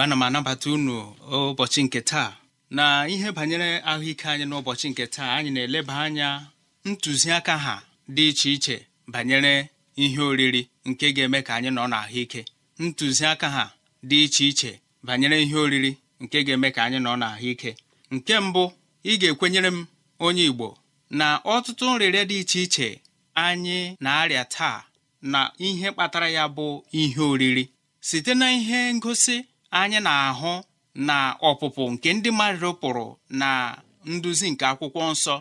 igwe ana m anabata unu ụbọchị nke taa na ihe banyere ahụike anyị n'ụbọchị nke taa anyị na-eleba anya ntụziaka ha dị iche iche banyere ihe oriri nke ga-eme ka anyị nọ n'ahụike ntụziaka ha dị iche iche banyere ihe oriri nke ga-eme ka anyị nọ n'ahụike nke mbụ ị ga-ekwenyere m onye Igbo na ọtụtụ nrịrịa dị iche iche anyị na-arịa taa na ihe kpatara ya bụ ihe oriri site na ihe ngosi anyị na-ahụ na ọpụpụ nke ndị mmadụ pụrụ na nduzi nke akwụkwọ nsọ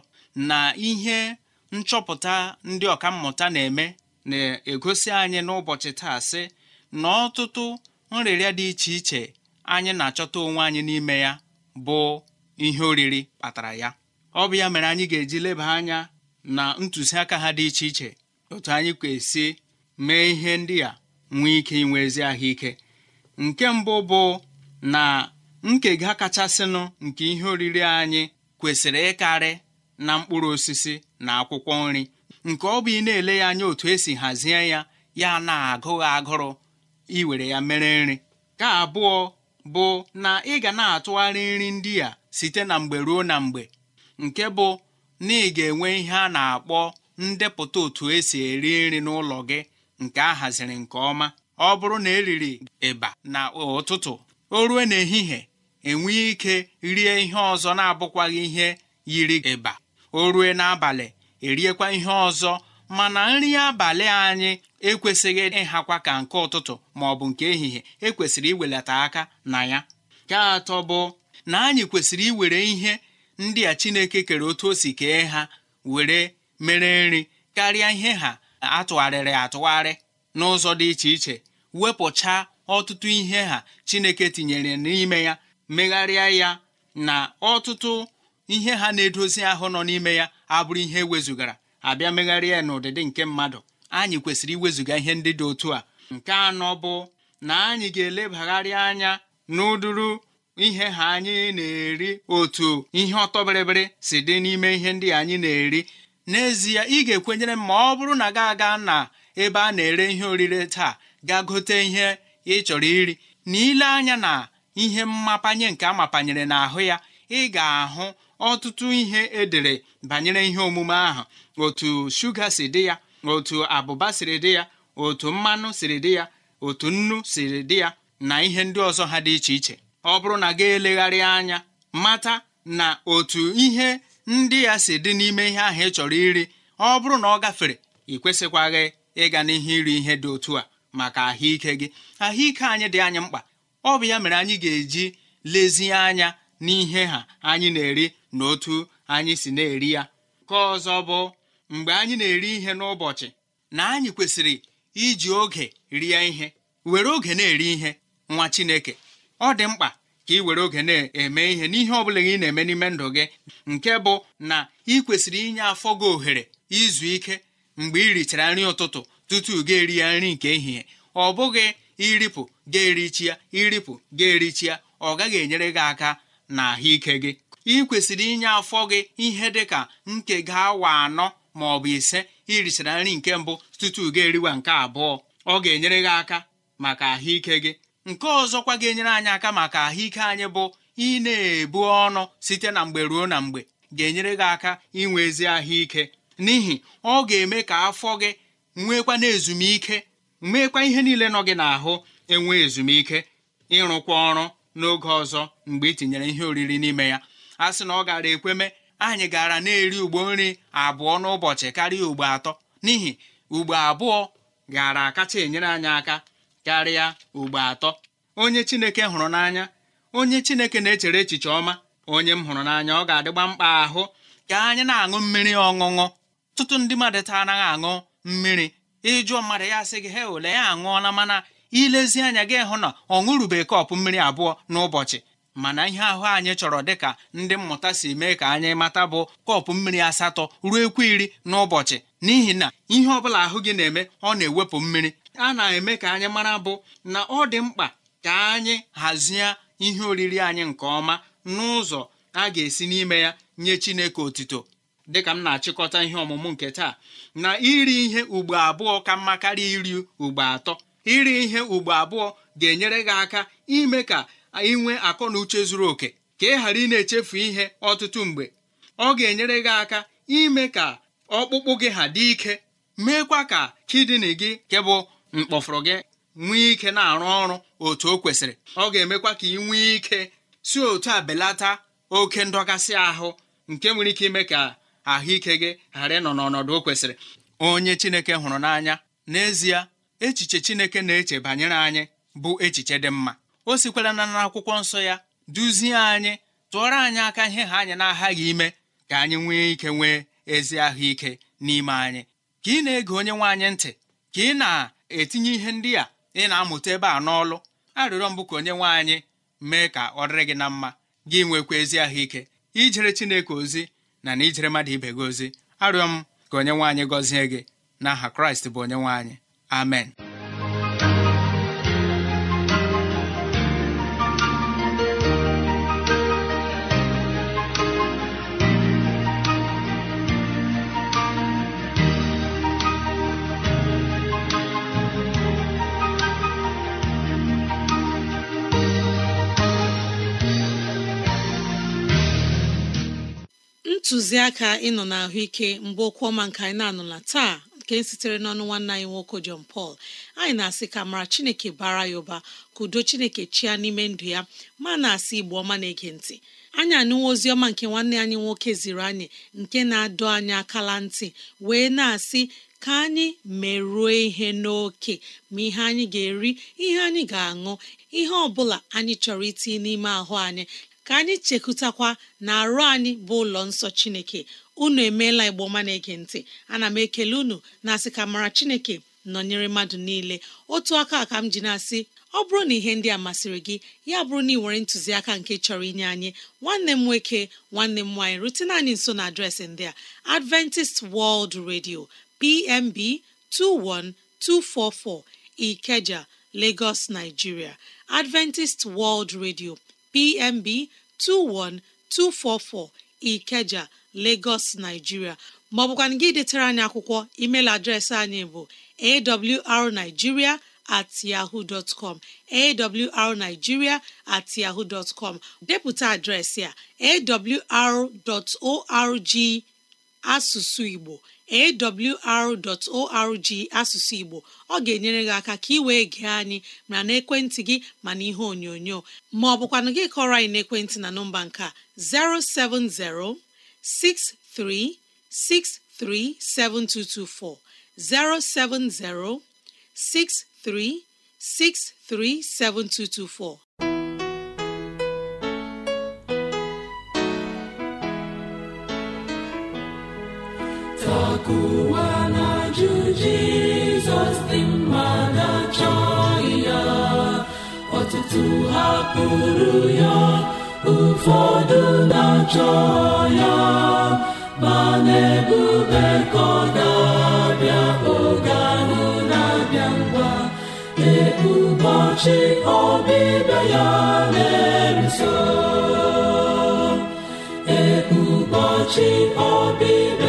na ihe nchọpụta ndị ọkammụta na-eme na-egosi anyị n'ụbọchị taa sị na ọtụtụ nrịrịa dị iche iche anyị na-achọta onwe anyị n'ime ya bụ ihe oriri kpatara ya ọ bụ ya mere anyị ga-eji leba anya na ntụziaka ha dị iche iche otu anyị kwesị mee ihe ndị a nwee ike inwe ezi ahụike nke mbụ bụ na nkega kachasịnụ nke ihe oriri anyị kwesịrị ịkarị na mkpụrụ osisi na akwụkwọ nri nke ọ bụ ị na-ele ya anya otu esi hazie ya ya na-agụghị agụrụ iwere ya mere nri ka abụọ bụ na ị ga na-atụgharị nri ndị a site na mgbe ruo na mgbe nke bụ na ị ga-enwe ihe a na-akpọ ndepụta otu esi eri nri n'ụlọ gị nke a haziri nke ọma ọ bụrụ na eriri ịba na ụtụtụ o rue n'ehihie enwee ike rie ihe ọzọ na-abụkwaghị ihe yiri ịba o rue n'abalị eriekwa ihe ọzọ mana nri abalị anyị ekwesịghị ịhakwa ka nke ụtụtụ ma ọ bụ nke ehihie ekwesịrị iwelata aka na ya nke atọ bụ na anyị kwesịrị iwere ihe ndị a Chineke kere otu o si kee ha were mere nri karịa ihe ha atụgharịrị atụgharị n'ụzọ dị iche iche wepụcha ọtụtụ ihe ha chineke tinyere n'ime ya megharịa ya na ọtụtụ ihe ha na-edozi ahụ nọ n'ime ya abụrụ ihe wezugara abịa megharịa ya n'ụdịdị nke mmadụ anyị kwesịrị iwezuga ihe ndị dị otu a nke anọ bụ na anyị ga-elebagharị anya n'ụdụrụ ihe ha anyị na-eri otu ihe ọtọbịrịbịrị si dị n'ime ihe ndị anyị na-eri n'ezie ị ga-ekwenyere m ma ọ bụrụ na gị aga na ebe a na-ere ihe orire taa gaa gote ihe ị chọrọ iri na ile anya na ihe mmapanye nke amapanyere n'ahụ ya ị ga-ahụ ọtụtụ ihe edere banyere ihe omume ahụ otu shuga si dị ya otu abụba siri dị ya otu mmanụ siri dị ya otu nnu siri dị ya na ihe ndị ọzọ ha dị iche iche ọ bụrụ na ga-elegharị anya mata na otu ihe ndị ya si dị n'ime ihe ahụ ị chọrọ iri ọ bụrụ na ọ gafere ị kwesịkwaghị ịga n'ihe iri ihe dị otu a maka ahụike gị ahụike anyị dị anyị mkpa ọ bụ ya mere anyị ga-eji lezie anya n'ihe ha anyị na-eri na otu anyị si na-eri ya ka ọzọ bụ mgbe anyị na-eri ihe n'ụbọchị na anyị kwesịrị iji oge rie ihe were oge na-eri ihe nwa Chineke ọ dị mkpa ka ị were oge na-eme ihe n'ihe ọ bụla ị na-eme n'ime ndụ gị nke bụ na ị kwesịrị inye afọ gị ohere izu ike mgbe ị richara nri ụtụtụ tutu ga-eri ya nri nke ehihie ọ bụghị iripụ ga-erichia iripụ ga ya ọ gaghị enyere gị aka na ahụike gị ị kwesịrị inye afọ gị ihe dị ka ga awa anọ ma ọ bụ ise irichara nri nke mbụ tutu ga-eriwa nke abụọ ọ ga-enyere gị aka maka ahụike gị nke ọzọkwa ga-enyere anyị aka maka ahụike anyị bụ ị na-ebu ọnụ site na mgbe ruo na mgbe ga-enyere gị aka inwe ezi ahụike n'ihi ọ ga-eme ka afọ gị na ezumike nwekwa ihe niile nọ gị n'ahụ enwe ezumike ịrụkwa ọrụ n'oge ọzọ mgbe ị tinyere ihe oriri n'ime ya a sị na ọ gara ekweme anyị gara na-eri ugbo nri abụọ n'ụbọchị karịa ugbo atọ n'ihi ugbo abụọ gara akacha enyere anyị aka karịa ugbo atọ onye chineke hụrụ n'anya onye chineke na-echere echiche ọma onye m hụrụ n'anya ọ ga-adịgba mkpa ahụ ka anyị na-aṅụ mmiri ọṅụṅụ tụtụ ndị mmadụ taa anaghị aṅụ mmiri ịjụọ mmadụ ya sị gị he ole ya aṅụọla mana ilezi anya gị hụ na ọ ṅụrụbeghị kọpụ mmiri abụọ n'ụbọchị mana ihe ahụ anyị chọrọ dịka ndị mmụta si mee ka anyị mata bụ kọpụ mmiri asatọ ruo ekwu iri n'ụbọchị n'ihi na ihe ọbụla ahụ gị na-eme ọ na-ewepụ mmiri a na-eme ka anyị mara bụ na ọ dị mkpa ka anyị hazie ihe oriri anyị nke ọma n'ụzọ a ga-esi n'ime ya nye Chineke otito dịka m na-achịkọta ihe ọmụmụ nke taa na iri ihe ugbo abụọ ka mma karịa iri ugbo atọ iri ihe ugbo abụọ ga-enyere gị aka ime ka ị nwee akọ na uche zuru oke ka ị ghara ị na-echefu ihe ọtụtụ mgbe ọ ga-enyere gị aka ime ka ọkpụkpụ gị ha dị ike meekwa ka kidini gị nke bụ mkpọfụrụ gị nwee ike na-arụ ọrụ otu o kwesịrị ọ ga-emekwa ka ị nwee ike si otu a belata oke ndọgasị ahụ nke nwere ike ime ka ahụike gị ghara ịnọ n'ọnọdụ o kwesịrị onye chineke hụrụ n'anya n'ezie echiche chineke na-eche banyere anyị bụ echiche dị mma o sikwara na n'akwụkwọ nsọ ya duzie anyị tụọrọ anyị aka ihe ha anyị na-aghaghị ime ka anyị nwee ike nwee ezi ahụike n'ime anyị ka ị na-ege onye nwaanyị ntị ka ị na-etinye ihe ndị a ị na-amụta ebe a n'ọlụ arịrịọ mbụ ka onye nwaanyị mee ka ọ dịrị gị na mma gị nwekwa ezi ahụike ijere chineke ozi na na ijere mmadụ ibe gị ozi arịọ m ka onye nwanyị gọzie gị n'aha kraịst bụ onye nwaanyị. amen ntụziaka ịnọ na ahụike mgbe okwu ọma nke anyị na-anụla taa nke sitere n'ọnụ nwanne anyị nwoke jon Paul anyị na-asị ka mara Chineke bara ya ụba ka udo Chineke chia n'ime ndụ ya ma na-asị Igbo ọma na-ege ntị anyị anụwa ozi ọma nke nwanne anyị nwoke ziri anyị nke na-adọ anyị akala ntị wee na-asị ka anyị merụọ ihe n'oke ma ihe anyị ga-eri ihe anyị ga-aṅụ ihe ọ bụla anyị chọrọ itinye n'ime ahụ anyị ka anyị chekụtakwa na arụ anyị bụ ụlọ nsọ chineke unu emeela igboma na-ege ntị ana m ekele unu na asị ka mara chineke nọnyere mmadụ niile otu aka ka m ji na-asị ọ bụrụ na ihe ndị a masịrị gị ya bụrụ na ị nwere ntụziaka nke chọrọ inye anyị nwanne m nwoke nwanne m nwaanyị rutena anyị nso na adreesị ndị a Adventist World Radio PMB 21244 Ikeja Lagos Nigeria Adventist World Radio PMB 21244 Ikeja Lagos Nigeria maọbụkwana gị detara anyị akwụkwọ email adreesị anyị bụ awrnigeria at yahoo dot com at yahoo dot com depụta adreesị a awr.org asụsụ igbo awr.org asụsụ igbo ọ ga-enyere gị aka ka ị wee gee anyị mara n'ekwentị gị ma n'ihe onyonyo ma ọ bụkwa na gị kọrọ anyị n'ekwentị na nọmba nke 070 63 7224. 070 63 63 7224. ụwa na-ajụ jizọs dị mma na-achọghị ya ọtụtụ hapụrụ ya ụfọdụ na-achọ ya ma na-ebube ka ọ na-abịa oge ahụ na-abịa ngwa ee ọbịbịa ya na-eruso ee ọbịbịa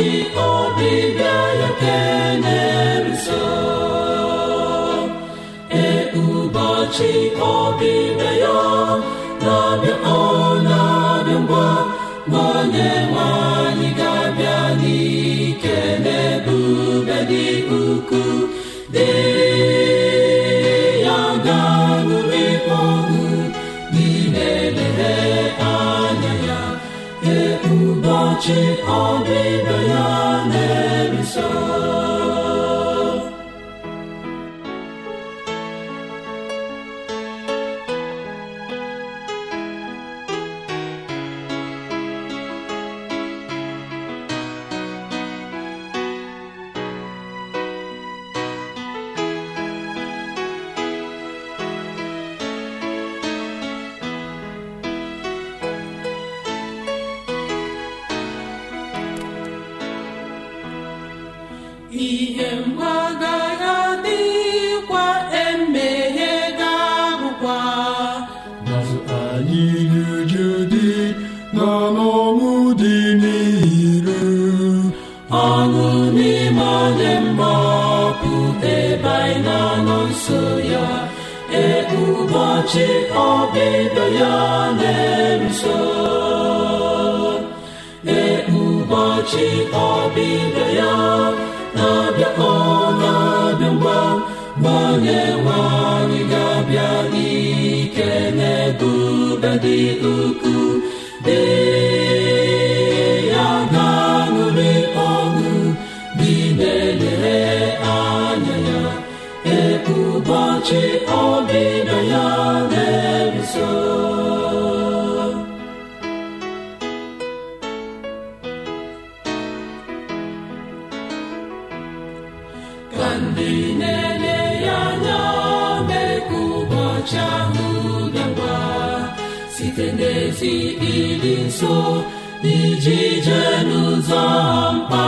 ụbọchị ọbịbịa ya kelee nso e ụbọchị ọbịbịa ya na-abịa ọ na-abịa ngwa ma onye nwanyị ga-abịa n'ike n'ebube dị ukwuu dị ụbọchị ọbịbịa ya ihe mgbaga ụbọchị ya na ka ndị na ya anya n'ezi ịdị nso n'iji jee n'ụzọ mkpa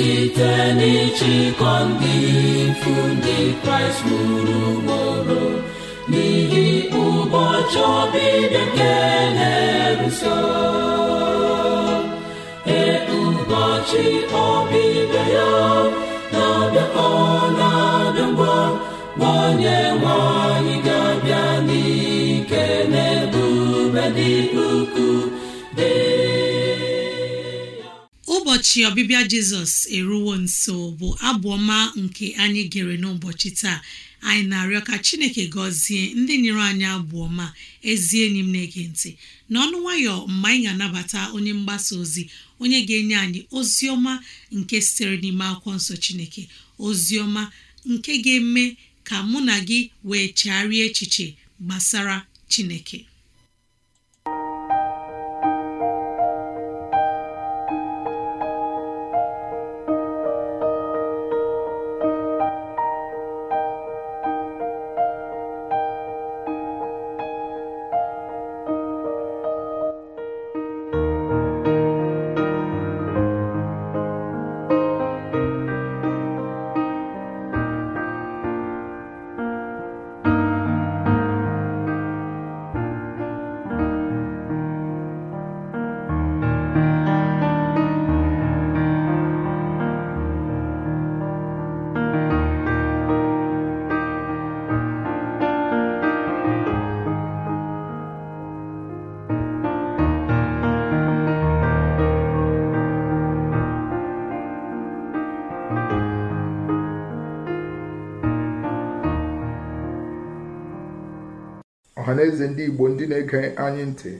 site n'ịchịkọ ndị ifu ndị kraịst gburu gboro n'ihi ụbọchị ọbịbịa nke na-eruso ee ụbọchị ọbịbịa ya na-abịa na-abịa ngwa gbanye nwanyị ga-abịa n'ike n'ebube ụbọchị ọbịbịa jizọs eruwo nso bụ abụọma nke anyị gere n'ụbọchị taa anyị na-arịọ ka chineke gọzie ndị nyere anyị ọma ezi enyi m na-ege ntị n'ọnụ nwayọ mgbe anyị ga-anabata onye mgbasa ozi onye ga-enye anyị ozi ọma nke sitere n'ime akwụkwọ nsọ chineke ozi ọma nke ga-eme ka mụ na gị wee chegharịa echiche gbasara chineke na-eze ndị igbo ndị na-ege anyị ntị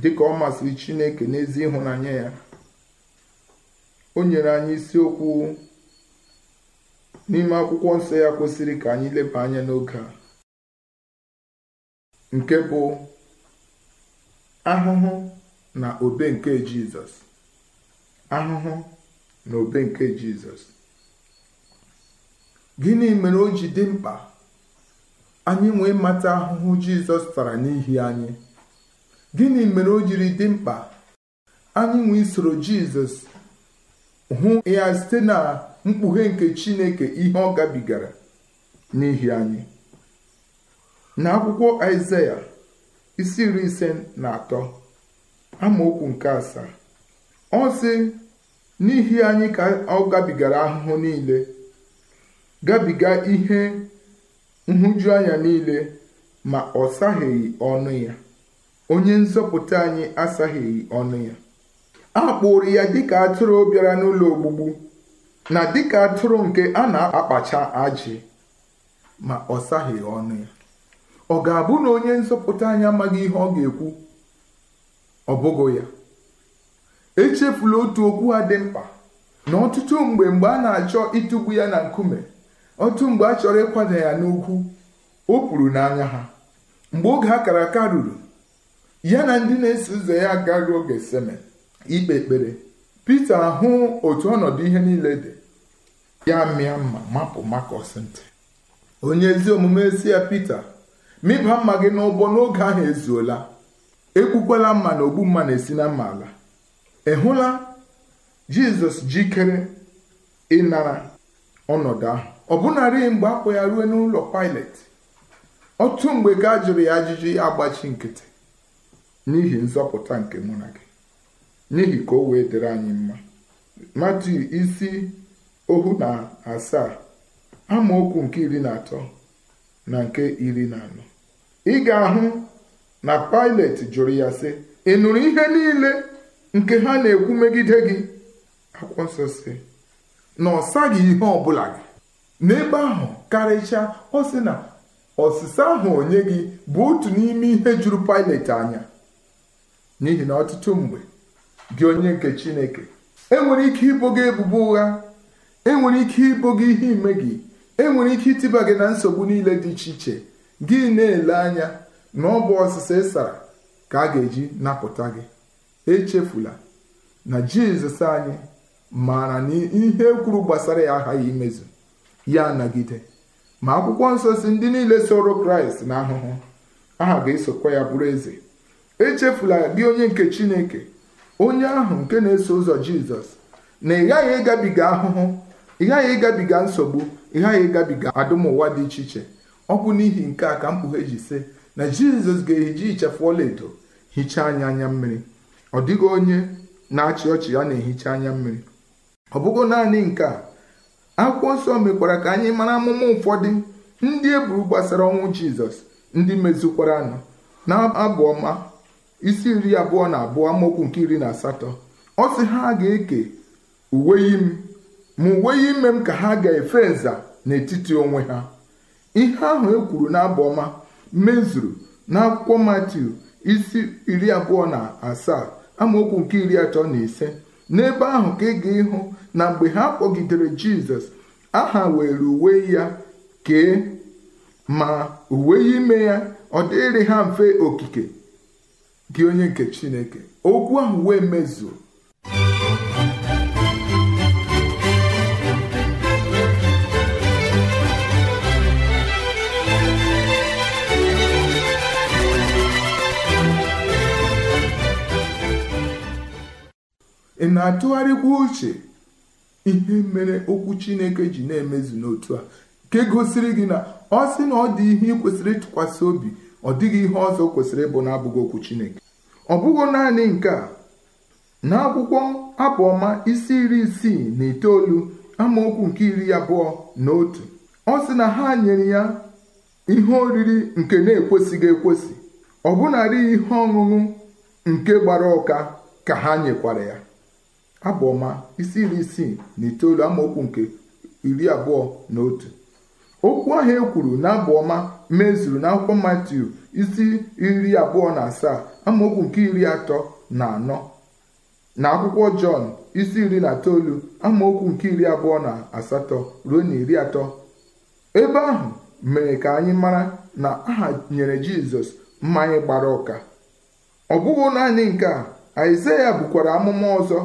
dịka ọ masịrị chineke n'ezi ịhụnanya ya o nyere anyị isiokwu n'ime akwụkwọ nsọ ya kwesịrị ka anyị leba anya n'oge a nke bụ ahụhụ na obe nke jizọs ahụhụ na obe nke jizọs gịnị mere o ji dị mkpa anyị nwee mata ahụhụ jizọs tara n'ihi anyị gịnị mere o jiri dị mkpa anyị nwee isoro jizọs hụ ya site na mkpughe nke chineke ihe ọ gabigara n'ihi anyị N'akwụkwọ akwụkwọ isi iri ise na atọ amaokwu nke asaa ọ sị n'ihi anyị ka ọ gabigara ahụhụ niile gabiga ihe nhụjuanya niile ma ọ saghịghị ọnụ ya onye nzọpụta anyị asaghịghị ọnụ ya a kpụrụ ya dịka atụrụ bịara n'ụlọ ogbugbu na dịka atụrụ nke a na-akpacha ajị ma ọ saghịghị ọnụ ya ọ ga-abụ na onye nzọpụta anyị amaghị ihe ọ ga-ekwu ọ bụghị ya echefula otu okwu ha dị mkpa na ọtụtụ mgbe mgbe a na-achọ ịtụgbu ya na nkume otu mgbe a chọrọ ịkwada ya n'ukwu o kwuru n'anya ha mgbe oge a kara aka ruru ya na ndị na-eso ụzọ ya agaghị oge seme ikpe ekpere Pita ahụ otu ọnọdụ ihe niile dị ya mịa mma mapụ makọs ntị onye ezi omume si ya Pita mịba mma gị n'ụgbọ n'oge ahụ ezuola ekwukwala mma na ogbu mma na-esi na mma ala ị hụla Jizọs jikere ịnara ọnọdụ ahụ ọbụnarị mgbe akpọ ya ruo n'ụlọ Pilet otu mgbe gaa jụrụ ya ajụjụ agbachi nkịtị n'ihi nzọpụta nke mụ na gị n'ihi ka o wee dịrị anyị mma dị isi ohu na asaa amaokwu nke iri na atọ na nke iri na anọ ị ga-ahụ na Pilet jụrụ ya sị ị nụrụ ihe niile nke ha na-ekwu megide gị akwụkwọ nsọ si na ọ saghị ihe ọ gị n'ebe ahụ karịchaa ọ sị na ọsịsa ahụ onye gị bụ otu n'ime ihe juru pailet anya n'ihi na ọtụtụ mgbe gị onye nke Chineke enwere ike ibo gị ebubo ụgha enwere ike ibo gị ihe ime gị enwere ike ịtịba gị na nsogbu niile dị iche iche gị na-ele anya na ọ bụ ọsịsa ịsara ka a ga-eji napụta gị echefula na Jizọs anyị maara na ihe kwuru gbasara ya aghaghị imezu ya nagide ma akwụkwọ nsọ si ndị niile soro kraịst na ahụhụ aha ga-esokwa ya bụrụ eze echefula gị onye nke chineke onye ahụ nke na-eso ụzọ jizọs na ị ghaghị ịgabiga ahụhụ ị ghaghị ịgabiga nsogbu ị ghaghị ịgabiga adụmụwa dị iche iche ọ bụ n'ihi nke a ka mkpughe ji sị na jizọs ga-eji ichefu ọlaedo hichaa anyị anya mmiri ọ dịghị onye na-achị ọchị ya na-ehicha anya mmiri ọ bụghị naanị nke a akwụkwọ nsọ mekwara ka anyị mara amụma ụfọdụ ndị eburu gbasara ọnwụ jizọs ndị mezukwara nụ na abụ ọma isi iri abụọ na abụọ amaokwu nke iri na asatọ ọ sị ha ga-eke uwe imi ma uwe ime m ka ha ga-efe nza n'etiti onwe ha ihe ahụ e kwuru n'abụ ọma mezuru akwụkwọ matiu isi iri abụọ na asaa amaokwu nke iri atọ na ise n'ebe ahụ ka ị ga ịhụ na mgbe ha kpọgidere jizọs aha were uwe ya kee ma uwe ime ya ọ dịrị ha mfe okike gị onye nke chineke okwu ahụ wee mezuo ị na-atụgharịkwa uche ihe mere okwu chineke ji na-emezu n'otu a nke gosiri gị na ọ sị na ọ dị ihe ị kwesịrị ịtụkwasị obi ọ dịghị ihe ọzọ kwesịrị ịbụ na-abụghị okwu chineke ọ bụghị naanị nke a n'akwụkwọ abụọma isi iri isii na itoolu amaokwu nke iri abụọ na otu ọ sị na ha nyere ya ihe oriri nke na-ekwesịghị ekwesị ọbụnarị ihe ọṅụṅụ nke gbara ọka ka ha nyekwara ya abụ isi iri isii na itoolu amaokwu nke iri abụọ na otu okwu ahụ e kwuru na abụọma mezuru na akwụkwọ matiu isi iri abụọ na asaa amaokwu nke iri atọ na anọ na akwụkwọ jọn isi iri na itoolu amaokwu nke iri abụọ na asatọ ruo na iri atọ ebe ahụ mere ka anyị mara na aha nyere jizọs mmanya gbara ụka ọ bụghị naanị nke a aịzaya bụkwara amụma ọzọ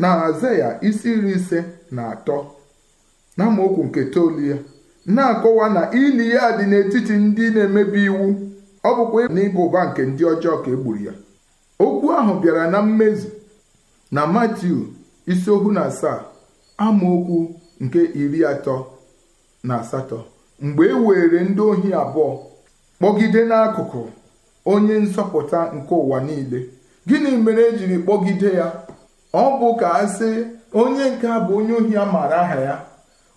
na ya isi iri ise na atọ na nke toolu ya na-akọwa na ili ya dị n'etiti ndị na-emebi iwu ọ bụkwa n'ịba ụba nke ndị ọjọọ ka egburu ya okwu ahụ bịara na mmezu na matiu isi ohu na asaa amaokwu nke iri atọ na asatọ mgbe e were ndị ohi abụọ kpọgide n'akụkụ onye nsọpụta nke ụwa niile gịnị mere ejiri kpọgide ya ọ bụ ka ha sị onye nke a bụ onye ohi a maara aha ya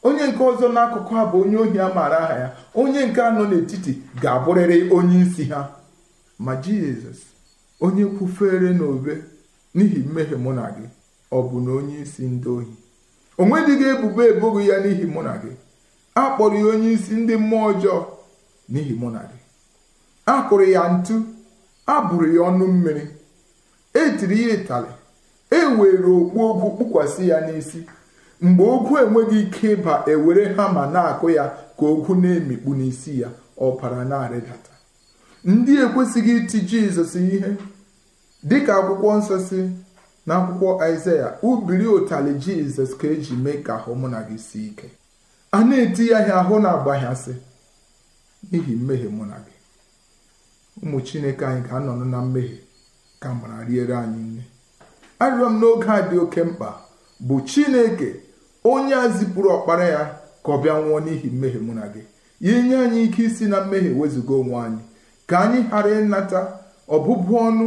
onye nke ọzọ n'akụkụ a bụ onye ohi a maara aha ya onye nke anọ n'etiti ga-abụrịrị onye isi ha ma jizọs onye kwufere n'obe n'ihi mmehie mụ na gị ọ bụ na onye isi ndị ohi o nwedịghị ebubo eboghị ya n'ihi mụ na gị a kpọrọ ya onye isi ndị mmụọ ọjọọ n'ihi mụ na gị a kụrụ ya ntu a bụrụ ya ọnụ mmiri e tiri ya ịtalị e were okpu ogwu kpụkwasị ya n'isi mgbe ogwu enweghị ike ịba ewere hama na-akụ ya ka ogwu na-emikpu n'isi ya ọbara na-arịdata ndị ekwesịghị iti jizọs ihe dịka akwụkwọ nsọ si na akwụkwọ aịzaya ubiri ụtali jizọs ka eji mee ka ahụ mụ na gị si ike a na-eti ya ahịa ahụ na-agbaghasị n'ihi mmehie mụ na gị ụmụ chineke anyị ga anọ na mmehie ka mara riere anyị nne arịọ m n'oge a dị oke mkpa bụ chineke onye a zipụrụ ọkpara ya ka ọ bịa nwụọ n'ihi mmehie mụ na gị inye anyị ike isi na mmehie wezụga onwe anyị ka anyị ghara ịnata ọbụbụ ọnụ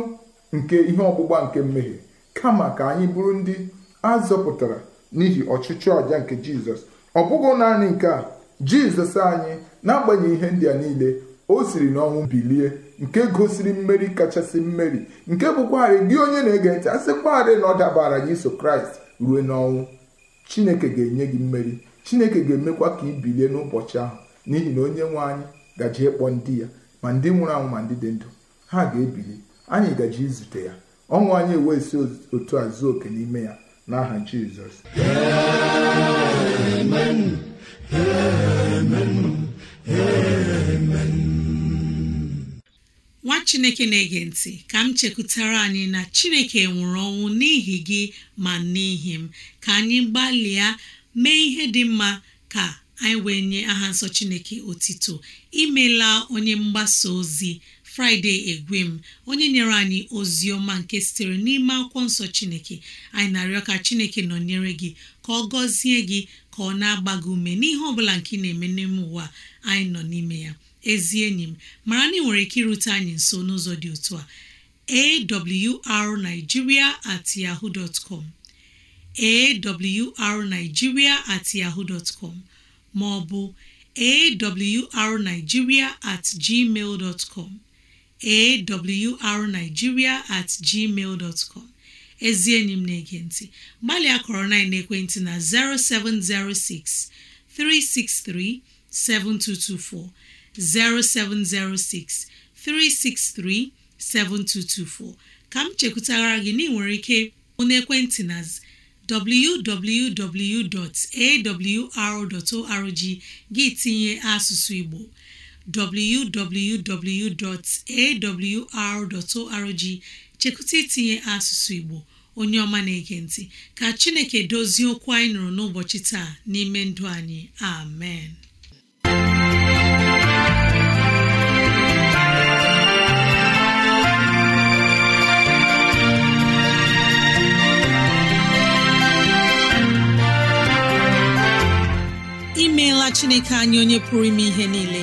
nke ihe ọgbụgba nke mmehie kama ka anyị bụrụ ndị a zọpụtara n'ihi ọchịchị ọja nke jizọs ọ bụghị naanị nke a jizọs anyị n'agbanyeghị ihe ndị a niile o siri n'ọnwụ bilie nke gosiri mmeri kachasị mmeri nke bụkwarị gị onye na-ege ntị asịkwarị na ọ dabara gị iso kraịst ruo n'ọnwụ chineke ga-enye gị mmeri chineke ga-emekwa ka ị bilie n'ụbọchị ahụ n'ihi na onye nwe anyị gaji ịkpọ ndị ya ma ndị nwụrụ anwụ ma ndị dị ndụ ha ga-ebili anyị gaji izute ya ọnwụ anyị ewesi otu a zuo oke n'ime ya n'aha Jizọs nwa chineke na-ege ntị ka m chekwutara anyị na chineke nwụrụ ọnwụ n'ihi gị ma n'ihi m ka anyị gbalịa mee ihe dị mma ka anyị wee nye aha nsọ chineke otito imela onye mgbasa ozi fraịde egwem onye nyere anyị ozi nke sitere n'ime akwụkwọ nsọ chineke anyị na-arịọ ka chineke nọnyere gị ka ọ gọzie gị ka ọ na-agba ume n'ihe ọbụla nke ị na-eme n'ime ụwa anyị nọ n'ime ya ezi enyi m mara na ị nwere ike irute anyị nso n'ụzọ dị otu a arigiria at yahoo dot com at yahoo dot com ma ọ at gmail dot awrnigeria at gmail dot com ezi enyi m na-ege ntị gbalịa kọrọ na ekwentị na 0706 363 7224 0706 363 7224 ka m chekwutara gị na ike onye ekwentị na www.awr.org gị tinye asụsụ Igbo www.awr.org chekwụta itinye asụsụ Igbo onye ọma na-ege ntị ka Chineke dozie okwu anyị nụrụ n'ụbọchị taa n'ime ndụ anyị amen imeela Chineke anyị onye pụrụ ime ihe niile